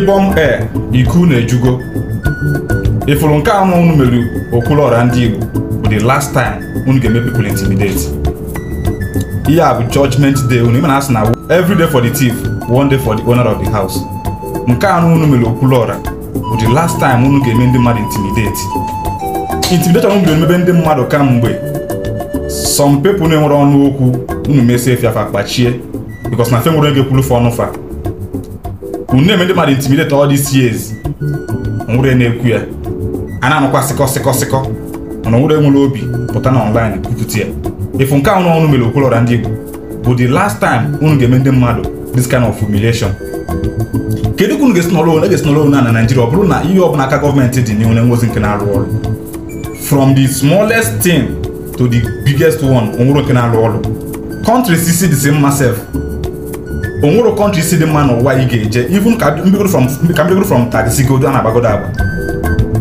ndị e ee iku na-ejugo ifụrụ nke anụ unu mere okwuluọra ndị Igbo bụ the last time unu ga-eme people intimidate ihe a bụ judgment day unu ịmana asị na every day for the thief one day for the owner of the house nke anụ unu mere okwuluọra bụ the last time unu ga-eme ndị mmadụ intimidate intimidation unu mebe emebe ndị mmadụ kamgbe some people na-enwere ọnụ okwu unu mesie fiafa kpachie because na fe nwere ego ekwulu fa ọnụ unu na-eme ndị mmadụ intimidate ọ these years nwere na-ekwu ya a na-anụkwa sịkọ sịkọ sịkọ mana nwere nwere obi pụta na online kwupụta ya ifu nke ahụ unu mere okwolora ndị Igbo bụ the last time unu ga-eme ndị mmadụ this kind of humiliation kedu ka unu ga-esi nọrọ ga-esi nọrọ na na Naịjirịa ọ bụrụ na ihe ọbụla aka gọọmenti dị n'ihu na-enwezi nke na-arụ ọrụ from the smallest thing to the biggest one onwere nke na-arụ ọrụ countries si dị mma sef onwere kọntrị isi dị mma n'ụwa ị ga-eje even ka mbigoro from taxi godo a na-agbagodo agba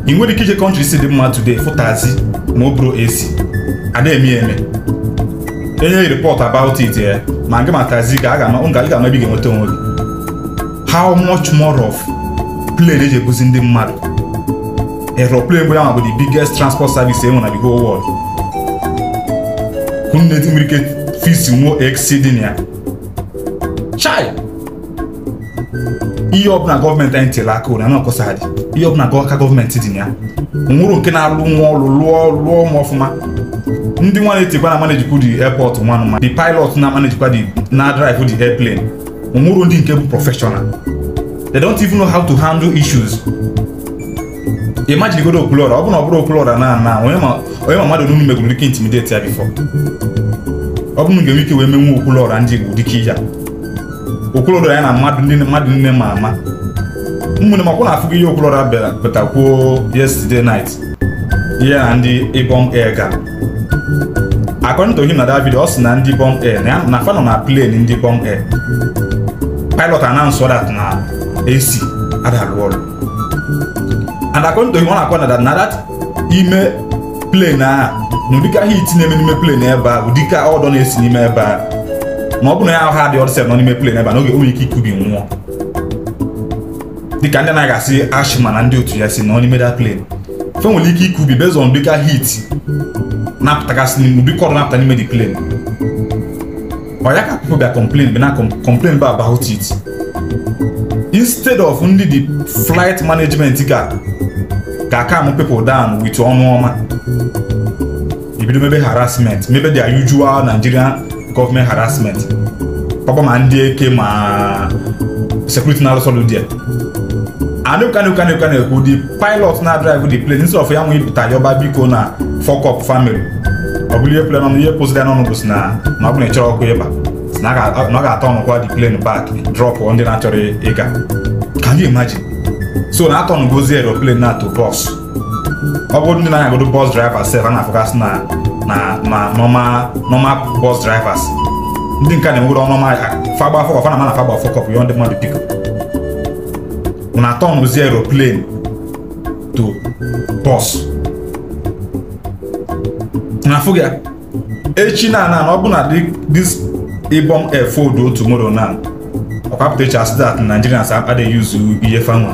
ị nwere ike ije kọntrị isi dị mma today fụtazi ma o bụrụ esi ada eme eme enye report about it ya ma gị ma taxi ga ga-ama ebe ga-enweta onwe gị how much more of plane eji ebuzi ndị mmadụ aeroplane bụ ya bụ the biggest transport service enwe na the whole world hụ nne nwere ike ya chai ihe ọbụla gọọmenti anyị tere aka ụra na-akọsaghadị ihe ọbụla aka gọọmenti dị na ya nwụrụ nke na-alụ nwa ọlụ lụọ lụọ ụmụ ọfụma ndị nwa na-etikwa na manejikwa dị airport nwanụ ma di pilot na manejikwa di na drive di airplane nwụrụ ndị nke bụ professional they don't even know how to handle issues imagine godo okulora ọ bụ na ọ bụrụ okulora na na onye ma mmadụ n'unu megoro dike intimidate ya bifọ ọ bụrụ na ga-enwe ike wee menwe okulora ndị igbo dike ya okoloro ya na mmadụ nne mmadụ nne ma ama ụmụnne m akwụna afụgo ihe okoloro batakwuo yesterday night ihe na ndị ibom air ga according to him na david video ọ sị na ndị ibom air na fa nọ na plane ndị ibom air pilot announce that na AC adarụ ọrụ and according to him ọ na-akwa na that na that ime plane a na ụdịka hit na-eme n'ime plane ebe a ụdịka ọdọ na-esi n'ime ebe a ma ọ bụrụ ya ahụ ha dị ọdịsel nọ n'ime plen ebe a n'oge nwere ike ikubi nwụọ dịka ndị na-aga ashị ashima na ndị otu ya si nọ n'ime dat plen fe nwere ike ikubi bezon dịka hit na-apụtagasị n'ụdịka ọrụ na-apụta n'ime dị plen ọ ya ka pipo bịa complain bịa na complain ba about it instead of ndị dị flight management ga ga calm people down wit ọnụ ọma ibido mebe harassment mebe their usual Nigeria. government harassment papa ma ndị eke ma security na-alụsọ ludia ekwu the pilot na-adrive di plane instead of ya nwe yọba biko na fọkọp family ọ bụrụ ihe plen ọnụ ihe pozi n'ọnụ bụ si ọ ọkụ ịba na ga-atọ ọnụkwa di plane so na aeroplane na to ọ ndị na bọs driver sef a na-afụgasị na na na normal normal bus drivers ndị nke na-enwere ọnụ ọma fagba afọ kọfa na mana fagba afọ kọpụ yọ ndị mmadụ biko na tọnụzi aeroplane to bus na afụ ya echi na na ọ bụ na this ibom air fold o tomorrow na ọkwa pụta echi asị that Nigerians adịghị use ihe fanwa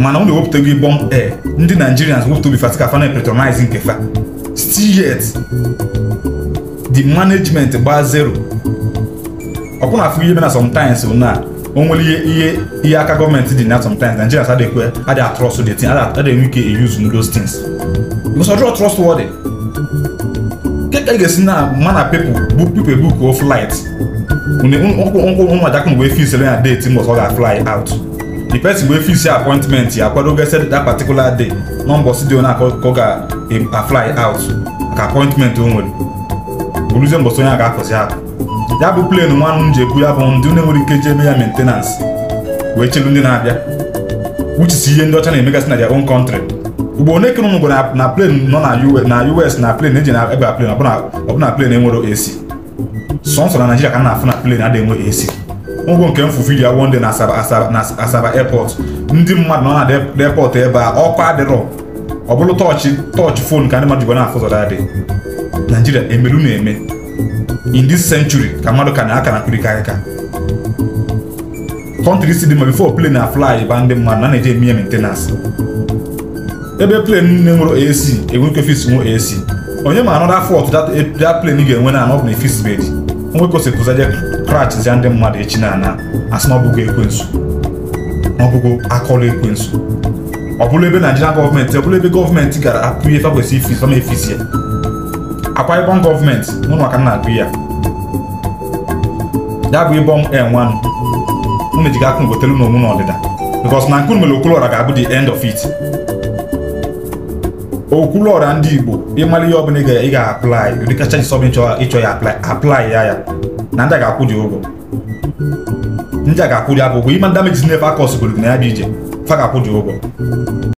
mana unu ewepụtago ibom air ndị Nigerians wepụta obi Fatika ka fa na-epretonize nke fa still yet the management gbaa zero ọkwụna afụ ihe mena sometimes na o nwere ihe ihe aka gọọmenti dị na sometimes Nigerians adịkwe adị atrọst the tin adị enwe ike use those things because ọdịrọ trust wọdị keka ị ga-esi na mana people book people book o flight nkwụ nkwụ nwa jakụ mgbe fi sere na date mbọsọ ọ ga fly out the person wee fix ya appointment ya akwadogo set that particular day na mbọsị dị onye ka ọ ga-afly out ka appointment o nwere bụrụzie mbọsị onye a ga-apụzi apụ ya bụ plane nwanụ m ji ekwu ya bụ ndị na-enwere ike ji eme ya maintenance wee chelu ndị na-abịa wuchisi ihe ndị ọcha na-emegasị na their own country ugbo one kere ụmụ na plane nọ na US na plane eji na ebe a plane ọbụna plane enwere AC sọnsọ na Naịjirịa ka na-afụ na plane adịghị enwe AC ụgwọ nke m fufiri ya wonde na Asaba airport ndị mmadụ nọ na airport ebe a ọkụ adịrọ ọ bụrụ tọọchị tọọchị fon ka ndị mmadụ jikwa na-afụ ụzọ adị Nigeria emelu na-eme in this century ka mmadụ ka na-aka na kpirikarịka kọntrị si dị ma bifo plane na fly ba ndị mmadụ na na-eji eme ya maintenance ebe plane na-enwero AC enwere ike fis nwe AC onye ma anọda fọt dat plane ga-enwe na anọ bụ na efisibedi nwekosipụzaje krachizia ndị mmadụ echi na ana asị na ọbụgo ekwensu ọbụgo akọrọ ekwensu ọ bụrụ ebe naijiria gọọmenti ọ bụrụ ebe gọọmenti gara akụ ihe fakwesị ifi fama efisi akwa ịbọn gọọmenti mụnụ maka na agụ ya ya bụ ịbọn enwanụ unu jiga akụ ngotelu na omu na ọdịda bikos na nkunu mere okolora ga-abụ the end of it okwuluọra ndị igbo ịmara ihe ọbụla ị ga-aplai ụdị kacha jisọbụ ịchọ ya aplai ya ya na ndị a ga-akwụ dị ụgwọ ndị a ga-akwụ dị abụgwọ ịma damages na-efe akọsgoro na ya bụ ije fa ga-akwụ dị ụgwọ